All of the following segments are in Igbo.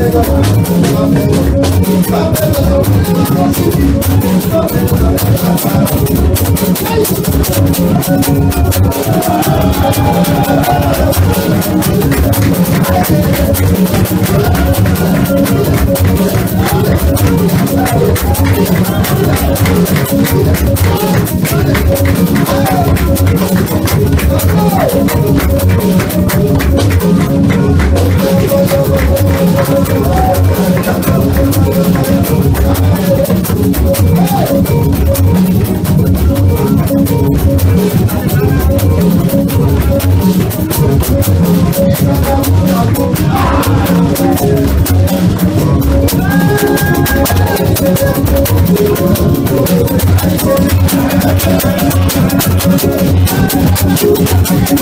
Thank you. I'm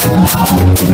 gonna go get some more.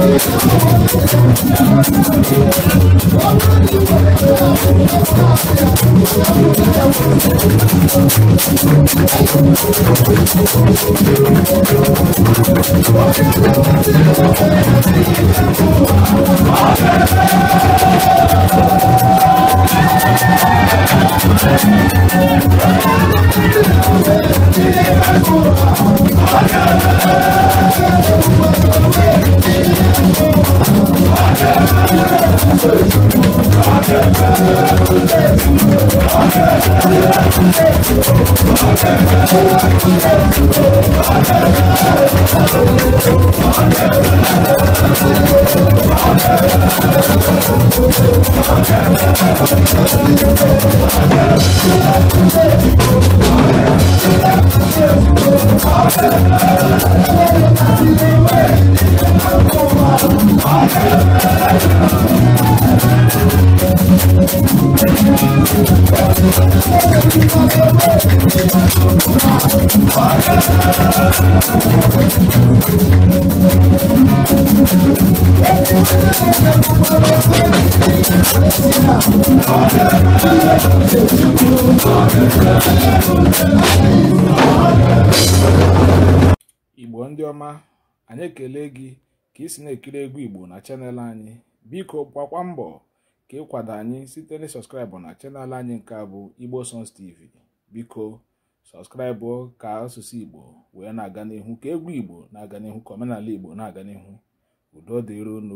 Oh, I'm ndị ọma anyị ekele gị ka isi na-ekiri egwu igbo na chanel anyị biko gbakwa mbọ ka kwado anyị site na sọskraịbụ na chanel anyị nke a bụ igbo songs tv biko sọskraịbụ ka asụsụ igbo wee na-aga n'ihu ka egwu igbo na-aga n'ihu ka omenala igbo na-aga n'ihu udo dịron